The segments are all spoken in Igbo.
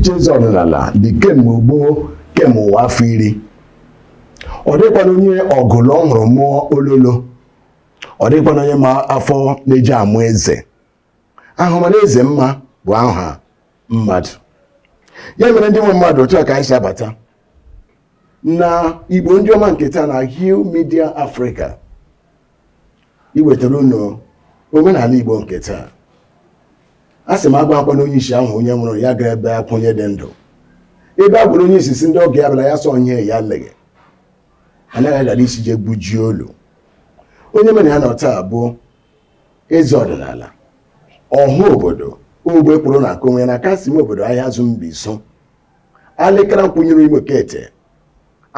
iche eze ọdịnala dị kemgbe gboo kemgbe ụwa afọ iri ọ dịkwana onye ọgụlụ ọhụrụ mụọ ololo ọ dịkwana onye ma afọ na-eji amụ eze ahụmana eze mma bụ aha mmadụ ya mere ndị nwe mmadụ otu a ka anyị si abata na igbo ndị ọma nke taa na Hill Media Africa iwetara unu omenala igbo nke taa a sị m agwa akwa na onye isi ahụ onye nwụrụ ya ga ebe akwa onye dị ndụ ebe agwụrụ onye isi si ndị oge abịala ya sọ onye ya leghe anaghị agara isi jee gbujie olu onye mere ya nọ taa bụ eze ọdịnala ọha obodo ogbe kpụrụ na nke onwe na kasị m obodo ahịa azụ mbiso alịkara nkwụnyere igbo kete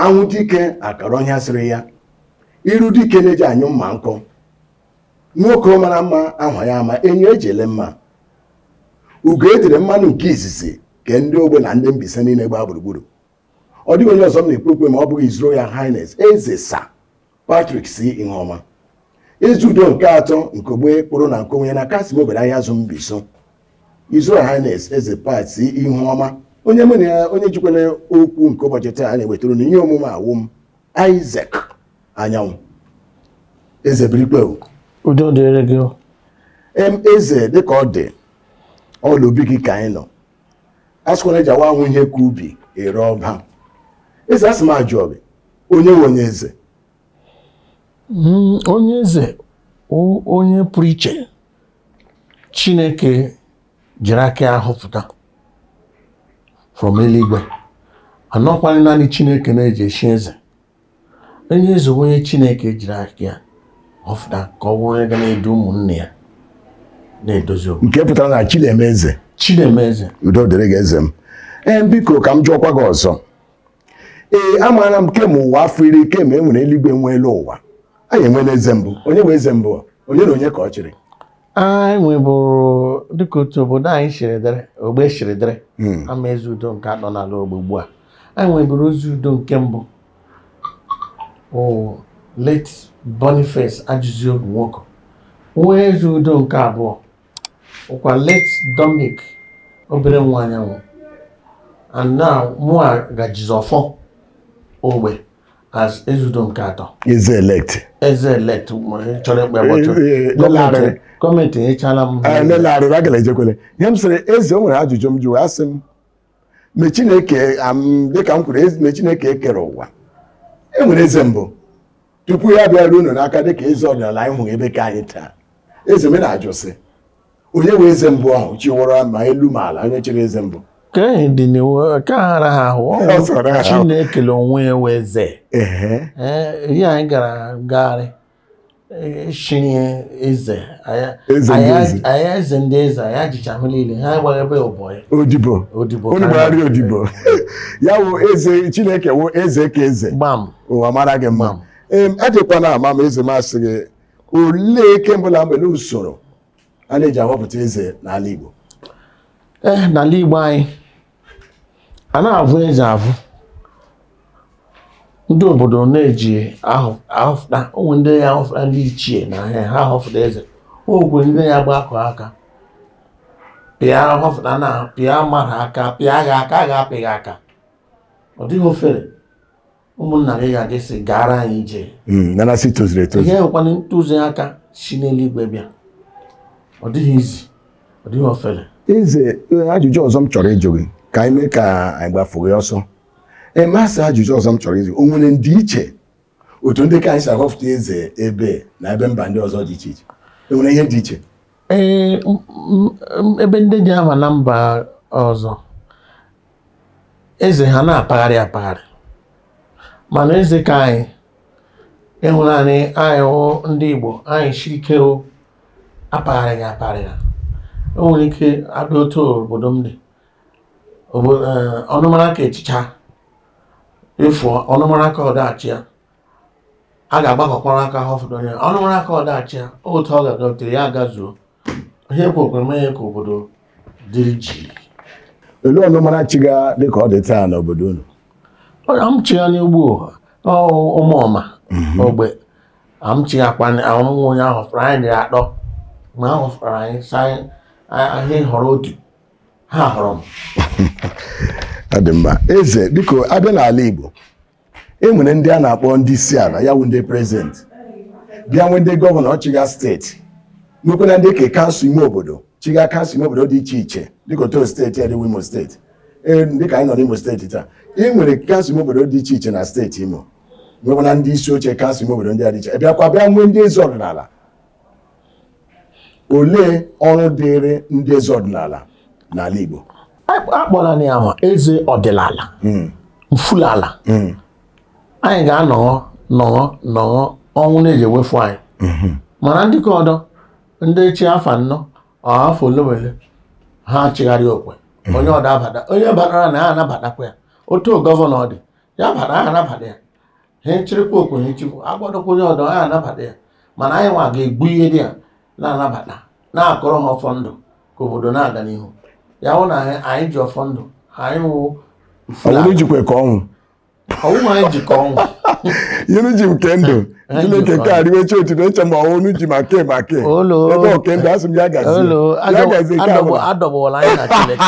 anwụ dike akara ọhịa sịrị ya iru dike na-eji anyụ mma nkụ nwoke mara mma ahụ ya ama enyo eji ele mma ugo ejire mmanụ nke izizi ke ndị ogbe na ndị mbise niile gbaa gburugburu ọ dịghị onye ọzọ m na-ekwu okwu ma ọ bụghị His ya Highness eze Sir Patrick C. ọma ezi udo nke atọ nke ogbe kpụrụ na nke onye na kasim obere ahịa azụ Mbiso His Royal eze Pat C. ọma onye mụ na ya onye jikwara okwu nke ụbọchị taa na-ewetara na ihe omume awụm m Anyanwụ eze birikpe udo dịrị gị eze dịka ọ dị ọla obi gị ka anyị nọ asịkwana ji awa ahụ ihe ka ubi ere ọba eze asị m ajụ gị onye nwe onye eze hmm, onye eze onye pụrụ iche chineke jiri aka ahụ from eluigwe anọkwala naanị chineke na-eji eshi eze onye eze onye chineke jiri aka ya họpụta ka ọ bụrụ onye ga na-edu ụmụnne ya nke pụtara na Chinemeze udo dịrị gị eze m ee eh, biko ka m jụọkwa gị ọzọ ee eh, amaara m kem ụwa afọ iri kemgbe enwere eluigwe nwe elu ụwa anyị enwela eze mbụ onye bụ eze mbụ onye na onye ka ọ chịrị anyị nwebụrụ dịka otu obodo anyị chịrịdịrị ogbe chịrịdịrị hmm. ama eze udo nke anọ n'ala ogbe ugbu a anyị nwebụrụ ozi udo nke mbụ late Boniface Ajụziobi nwoke nwee eze udo nke abụọ ụkwa late Dominic obere nwa anyanwụ and now mụa ga jizọfọ ogbe as Ezeudo nke atọ eze elect eze elect chọrọ ikpe bọtụ gọọmenti enyechala m eh, lelarịrị agala ejekwele ihe m sịrị eze o nwere ajụjụ m jụrụ asị m mgbe Chineke dịka m kwuru mgbe Chineke ekere ụwa Enwere eze mbụ tupu ya bịara unu n'aka dịka eze ọdịnala anyị hụrụ ebe ka anyị taa eze m na-ajụ sị onye wee eze mbụ ahụ chiwụra ma elu ma ala onye chịrị eze mbụ nke aghara ha ahụ chi na-ekele onwe ya wee eze ihe anyị gara ngagharị chiri e, eze aya eze ndị eze aya jicha ahụ niile ha gbara ebe ụbọ ya odibo odibo gbagharị odibo ya wụ eze chineke wụ eze ka eze gbam ụwa mara gị mma ee ajịkwana ama ma eze masị gị olee kemgbe na mgbele usoro a na-eji ahọpụta eze n'ala Igbo ee eh, n'ala Igbo anyị a na-avụ eze avụ ndị obodo na-eji ahọpụta ụmụ ndị ya ahọpụta ndị ichie na ahịa ha ahọpụta eze ogwe ndị ya gba akụ aka pịa ahọpụta na pịa mara aka pịa gha aka gha ga-apị aka ọ dịghị ofere ụmụnna gị ga-adị sị gara anyị ije hmm, ihe nwekwana aka si n'eluigwe bịa ọ dịghị izi ọ dịghị ofele eze ajụjụ ọzọ m chọrọ ịjụ gị ka anyị mee ka anyị gbafuo ya ọsọ emasị ajụjụ ọzọ m chọrọ ịjụ o nwere ndị iche otu ndị ka anyị si ahọfụta eze ebe na ebe mba ndị ọzọ dị iche iche e nwere ihe dị iche ee ebe ndị dị ama na mba ọzọ eze ha na-apagharị apagharị mana eze ka anyị ịhụnanị e anyị ndị Igbo anyị shirikeo aparịghị aparịgha o nwere ike abịa otu obodo m dị e, ọnụmara ka echicha efu ọnụmara ka ọdachi ya a ga-agbakọkwara aka ha ọfọdụ onye ọnụmara ka ọdachi ya otu ọ ga-adọtere ya agazuo ihe kwekwere mee ya ka obodo dịrị ji olee ọnụmara chi ga dị ka ọ dị taa n'obodo unu amchi ya n'ugbo ụmụọma mhm. ogbe amchi ya kwanyeanwụnwụ onye ahụ fụrụ anyị ma ahụ hụsara anyị saa ahịa họrọ otu ha họrọ m ọ dị mma eze biko abịa n'ala Igbo e nwere ndị a na-akpọ ndị isi ala ya wụ ndị prezident bịa nwee ndị gọvanọ ọchịga steeti nwekwara ndị ka kansụl ime obodo chiga kansụl ime obodo dị iche iche dịka otu steeti ya dịwa imo steeti e, dịka anyị nọ n'imo steeti taa e nwere kansụl ime obodo dị iche iche na steeti imo nwekwara ndị isi oche kansụl ime obodo ndị a dị iche bịakwa bịa nwee ndị eze ọdịnala olee ọrụ dịịrị ndị eze ọdịnala n'ala Igbo akpọrọ ya ma eze ọdịnala hmm. mfulala hmm. anyị ga-anọghọ nọghọ nọghọ ọnwụ na-eji ewefu anyị hmm. mana ndị ka ọdọ ndị chi afọ anọ afọ olewele ha chigharị okwe onye ọdọ abata onye batara na ya anabatakwa ya otu gọvanọ ọ dị ya bara aha anabata ya ha echirikwa okwe ha echikwa agbadokwa onye ọdọ ha anabata ya mana anyị nwa ga-egbu ihe dị ya na-anabata na-akọrọ ha ọfọ ndụ ka obodo na-aga n'ihu ya hụ na anyị ji ọfọ ndụ anyị wụ ka ọnwụ ọnwụ anyị ji ha ọnwụ yiri nke ndụ chineke nke arịwecha otito eche ma ọnwụ ji ma ke ma ke ebe oke ndụ asị m ya gazi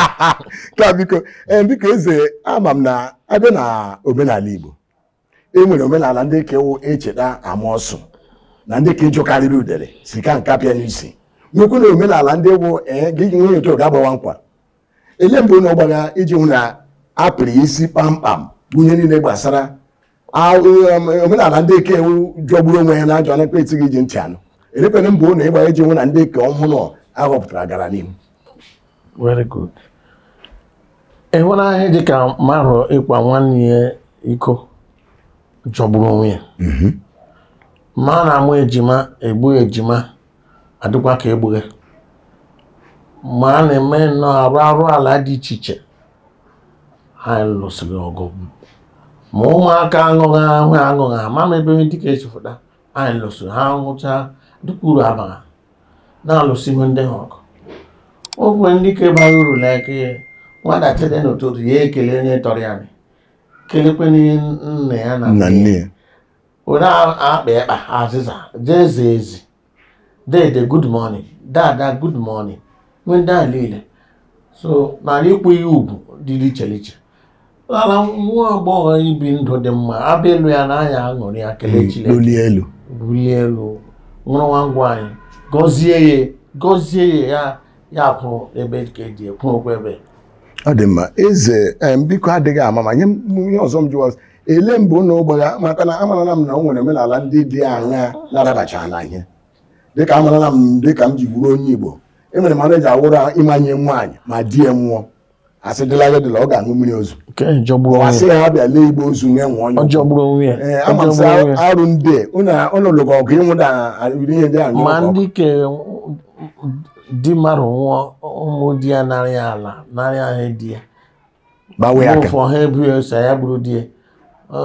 ka biko eh, biko eze ama m na abịa na omenala igbo e nwere omenala ndị kewu echeta e ama ọsụ na ndị ka ịjụ karịrị udere si ka nka pịa n'isi nwekwu na omenala ndị wụ eh, gị nwunye otu ga-agbawa nkwa ele mbụ na ọgbara iji hụ na apịrị isi kpamkpam bunye niile gbasara um, omenala ndị eke ewu jọgburu onwe ya na ajọ na ekpeti gị ji ntị anụ elepere mbụ na ịgba iji hụ na ndị eke ọhụrụ ahọpụtara gara n'ihu very ahịa ịhụnahịa dị ka nwanne ya iko jọgburu onwe ya mm-hmm. ma na-amụ ejima egbu ejima adịkwa ka egbughe ma a na-eme nnọọ arụ arụ ala dị iche iche ha lụsịrị ọgụ ma ụmụaka aṅụghị ahụ aṅụghị ama m ebe dịka echefụta anyị lụsịrị ha ṅụcha dịka uru abara na-alụsị ihe ndị ha ọkụ ogwe ndị ka bara uru n'eke nwata tede n'ụtụtụ ya ekele onye tọrọ ya kelekwe nne ya na nne ya onye akpa ịkpa azịza jee zee ezi dede good morning dada good morning nwe ndị niile so nara ịkwụ ihe ugwu dị iche iche nara nwa agbọghọ ibi ndụ dị mma abịa elu ya n'anya anya aṅụrị ya kelechi hmm, bulie elu nwụrụ nwa ngwa anyị gọzie ya gọzie ya ya kwụrụ ebe ka eji ekwu okwu ebe ọ dị mma eze biko adịghị ama ma nye onye ọzọ m jụwa ele mbụ na ya maka na amarala m na o nwere omenala ndị dị anya na-arabacha na ihe dịka amarala m dịka m ji bụrụ onye Igbo e nwere eji awụrụ ịmanye nwaanyị ma di ya nwụọ asị dịla ya dịla ọ ga-aṅụ mmiri ozu asị ya bịa lee igbo ozu nwee nwụọ onye ee ama m sị arụ ndị ụlọlụga ọgụ ịnwụda ihe ndị anyị ma ndị kere di marụ nwụọ ụmụ di ya narị ala narị ahụ di ya gbawe aka ụfọ ha ebughị ose ya bụrụ di ya Eh,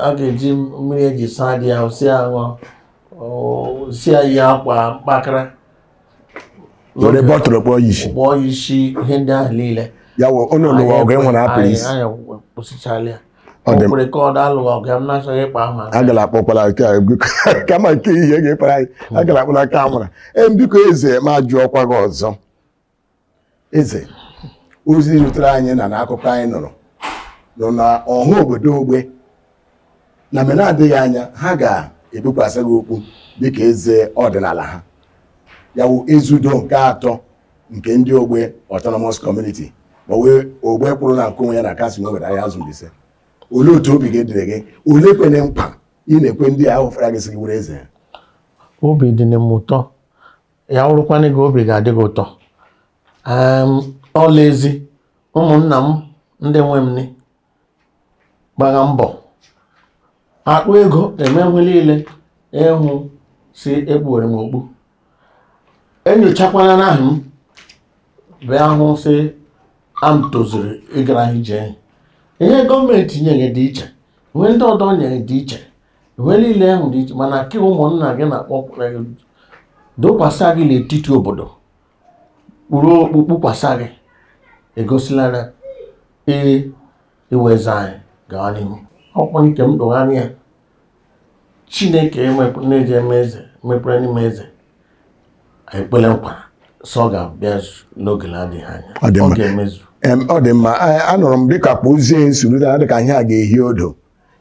a ga-eji mmiri eji saa dị ahụ si ahụ si yi akwa mkpakara were bọtụlụ kpọọ yishi kpọọ yishi ihe ndị ahụ niile ya wụ ụnụ lụwa ọgụ e nwere apụrụ isi anyị kwụsịchala ya ọkwere ka ọ dalụwa ọgụ m na-achọghị ịkpa ahụ agala akpọkwala kama e nke ihe ga-ekpara anyị agala akpọla aka amara ee biko eze ma jụọ ọkwa gị ọzọ eze ozi rutere anyị na n'akụkọ anyị nụrụ nọ na ọha obodo ogbe na mgbe na-adịghị anya ha ga ebikwasị gị okwu dịka eze ọdịnala ha ya yawu ezudo nke atọ nke ndị ogbe autonomous community ma wee ogbe kwụrụ na nke onwe ya na kasị nwere ya azụ Mbaise olee otu obi gị dịrị gị olee kwere mkpa ị na-ekwe ndị ahụ fara gị sị gị were eze ya obi dị na m ụtọ ya wụrụkwana gị obi ga-adị gị ụtọ ọla ezi ụmụnna m ndị nwe m gbara mbọ akpụ ego emewe niile ịhụ si ekpuwere m okpu enyochakwala n'ahụ m bịa hụ si am tozuru ịgara ije ihe gọọmenti nyere dị iche uwe ndị ọdọ nyere dị iche uwe niile ahụ dị iche mana ka ụmụnna gị na-akpọ e, dokwasa gị n'etiti obodo ruo okpukpukwasa gị egosilara ee iweze e anyị gaa n'ihu ọkpọ nke m dụgharị ya chineke na-eji eme eze mepere n'ime eze ekpele nkwa sọ ga-abịa n'oge na-adịghị anya ọ ga-emezu ọ dị mma anụrụ m dịka kpụzie nsoro dịka ihe a ga-ehi odo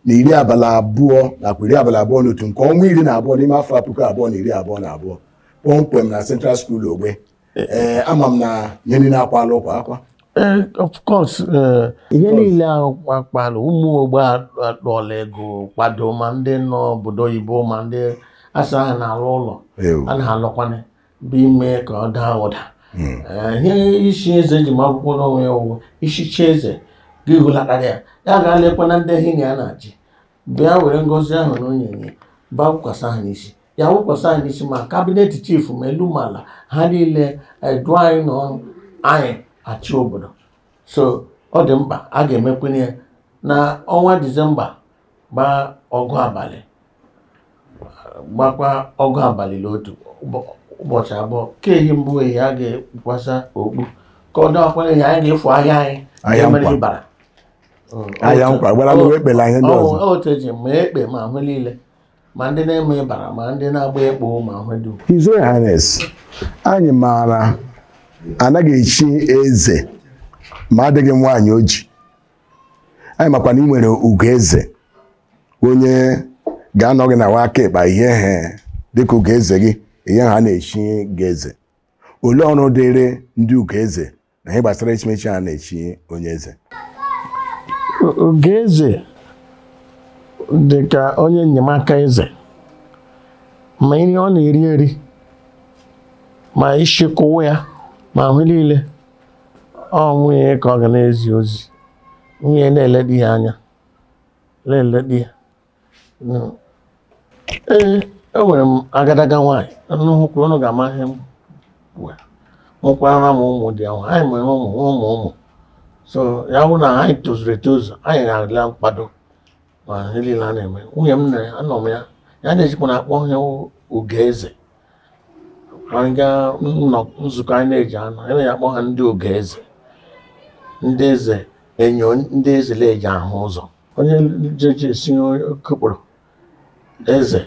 na iri abalị abụọ nakwa iri abalị abụọ na otu nke ọnwa iri na abụọ n'ime afọ puku abụọ na iri abụọ na abụọ kpọmkwem na Central skul Ogbe e, e. ama m na nyeni na-akwa alụ ụkwa akwa Eh, of course eh, ihe niile ahụ kpakpalụ ụmụ ogbe akpọla ego kwado ma ndị nọ obodo oyibo ma ndị asa ha na-alụ ụlọ a na-alụkwana bụ ime ka ọ daa ụda hmm. eh, ihe isi eze ji ma akwụkwọ n'onwe ya ụwụ ichichi eze gị hụlatara ya ya ga lekwana ndị ehi na ya na-achị bịa were ngozi ahụ na onyinye ba wụkwasa ha n'isi ya wụkwasa ha n'isi ma kabinet chifu ma elu ma ala ha niile edu anyị n'ọrụ anyị achị obodo so ọ dị mkpa a ga-emekwanye na ọnwa disemba gbaa ọgụ abalị gbakwa ọgụ abalị n'otu ụbọchị abụọ ka ehi mbụ ehi a ga ekwukwasa okpu ka ọ dọkwa ehi anyị ga-efu ahịa anyị emere ịbara ahịa nkwa gwara m ekpela ihe ndị ọzọ otu eji ma ekpe ma ahụ niile ma ndị na-eme ịbara ma ndị na-agba ekpo ma ahụ dum His Royal anyị maara anaghị echi eze ma adịghị nwaanyị oji anyị makwa na ị nwere ugo eze onye ga-anọ gị na nwaaka aka ịkpa ihe he dịka ugo eze gị ihe ha na-echi gị eze olee ọrụ dịrị ndị ugo eze na ihe gbasara echimechi ha na-echi onye eze ugoeze dịka dị ka onye enyemaka eze ma nri ọ na-eri eri ma ịchịkọwa ya ma ahụ niile ọ nwunye ka ọ ga na-ezi ozi nwunye na-ele di ya anya lele di ya ee enwere m agadaga nwaanyị nnukwu ọnụ ga-ama m nwekwara m ụmụ dị ahụ anyị nwere ụmụ ụmụ ụmụ so ya bụ na anyị tozuru etozu anyị na-adịla mkpado ma niile a na-eme nwunye m nere anọ m ya ya na-ejikwa na akpọ ihe uge eze anyị gaa nzukọ anyị na-eji anọ anyị na-akpọ ha ndị oge eze ndị eze enyo ndị eze na-eji ahụ ụzọ onye jeje si kụkpụrụ eze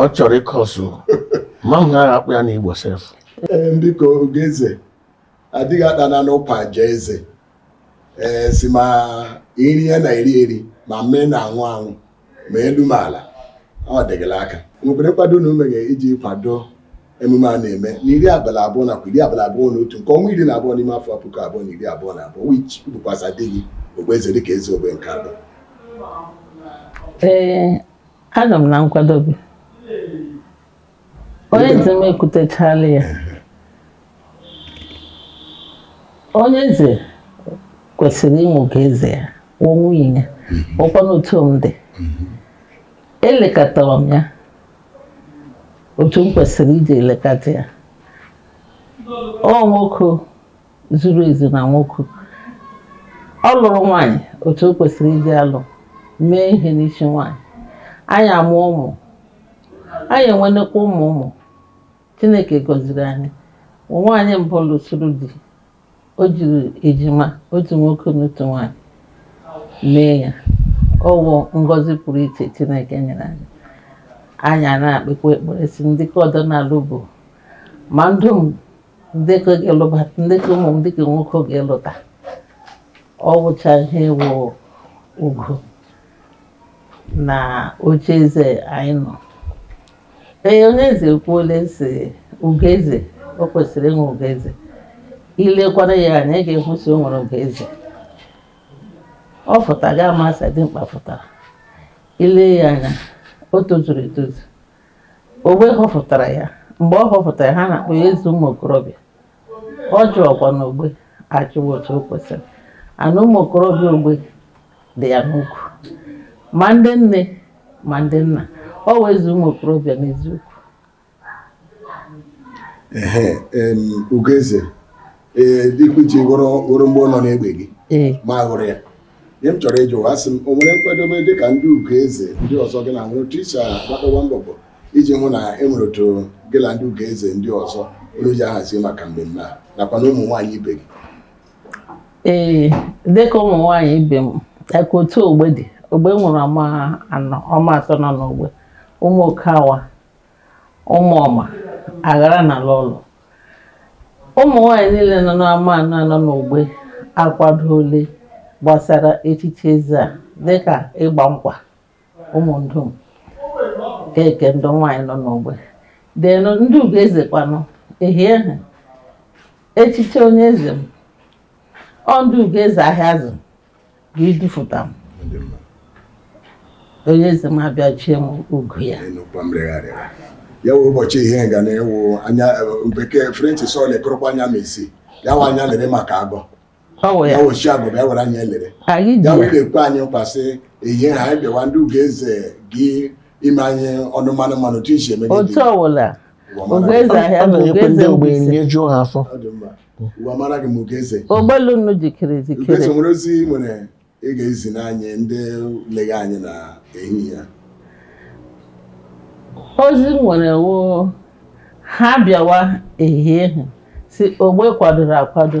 ọ chọrọ ịkọ ọsụ ma m gaghị akpụ ya n'igbo sef biko oge eze adịghị akpana n'ụpa je eze ee si ma iri ya na eri eri ma mee na-anwụ anwụ ma elu ma ala ọ dịgịla aka nwekwere nkwado na ume ga iji kwado emume a na-eme n'iri abalị abụọ nakwa iri abalị abụọ na otu nke ọnwa iri na abụọ n'ime afọ puku abụọ na iri abụọ na abụọ which bụkwaza adịghị gị okpueze dịka eze ogbe nke abụọ ee aga m na nkwadobe onye eze m ekwutechala ya onye eze kwesịrị ịmụ ka eze ya nwunye ya ọkwa n'otu m dị elekọtara m ya otu m kwesịrị iji ya ọ nwoke zuru ezu na nwoke ọ lụrụ nwaanyị otu o kwesịrị iji alụ mee ihe n'isi nwaanyị anyị amụọ ụmụ anyị enwenekwa ụmụ ụmụ chineke gọziri anyị nwaanyị mbụ lụsoro di o jiri ejima otu nwoke na nwanyị mee ya ọwụ ngọzi pụrụ iche chineke nyere anyị anya na-akpekwa ekpere si ndịka ọdịnala bụ ma ndụ m ndịka ga-elụba ụmụ m dịka nwoke ga-elụta ọ ihe wụ ugo na oche eze anyị nọ ee onye eze ekwuola si ugo eze o kwesịrị ịnwe ugo eze ilekwara ya anya ị ga-ekwusi o nwere ugo eze ọ fụta ga amasị mkpa fụtara ile ya anya o tozuru etozu ogbe họpụtara ya mgbe ọ họpụtara ha na-akpọ ya eze ụmụ okorobịa ọ jụọkwa na ogbe achụwa otu o kwesịrị ana ụmụ okorobịa ogbe dị ya n'ukwu ma ndị nne ma ndị nna ọ wezi ụmụ okorobịa n'eziokwu ee ugeze ee mgbe ọ gị ma hụrụ ya ihe m chọrọ ịjụ asị m o nwere nkwadobe dịka ndị ugo eze ndị ọzọ gị na nwere otu isi akpatawa mbọbọ iji hụ na e otu gị na ndị ugo eze ndị ọzọ onye ji ahazi maka mmemme a nakwa na ụmụ ibe gị ee dịka ụmụ nwaanyị ibe m aka otu ogbe dị ogbe e nwụrụ ama anọ ọma atọ nọ n'ogbe ụmụ okawa ụmụ ọma aghara na ala ụlọ ụmụ nwaanyị niile nọ n'ama anọ anọ n'ogbe akwadoole gbasara echiche eze a dịka ịgba nkwa ụmụndum keke ndụ nwaanyị nọ n'ogbe denu ndị ugo kwanụ ehie ha echiche onye eze m ọ ugo eze ahịa azụ ga idufụta m onye eze m abịachie m ugo ya ya wee ụbọchị ihe ga na-ewu anya eh, bekee french sọl ekorokwa anya ma isi ya nwa anya lere maka agọ ya ochi agụba ya gwara anyị elere ya wee na-ekwe anyị nkwa sị eyi ha anyị bịawa ndị ugeze gị ime anyị ọnụ mmanụ mmanụ otu isi eme otu ọwụla ogeze ahịa bụ ogeze ogbenye jụọ ha afọ uwe amara gị m ogeze ogbelunu jikere jikere ugeze nwere ozi nwere ị ga-ezi n'anyị ndị legha anyị na ehihie ozi nwere wo ha bịawa ehihie ha si ogbe kwadoro akwado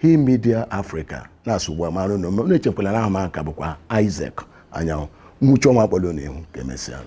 He Media Africa na-asụ ugbu a na m na-echekwala na bụkwa Isaac Anyanwụ nwuchi ọnwa kpọrọ n'ihu ka emesịa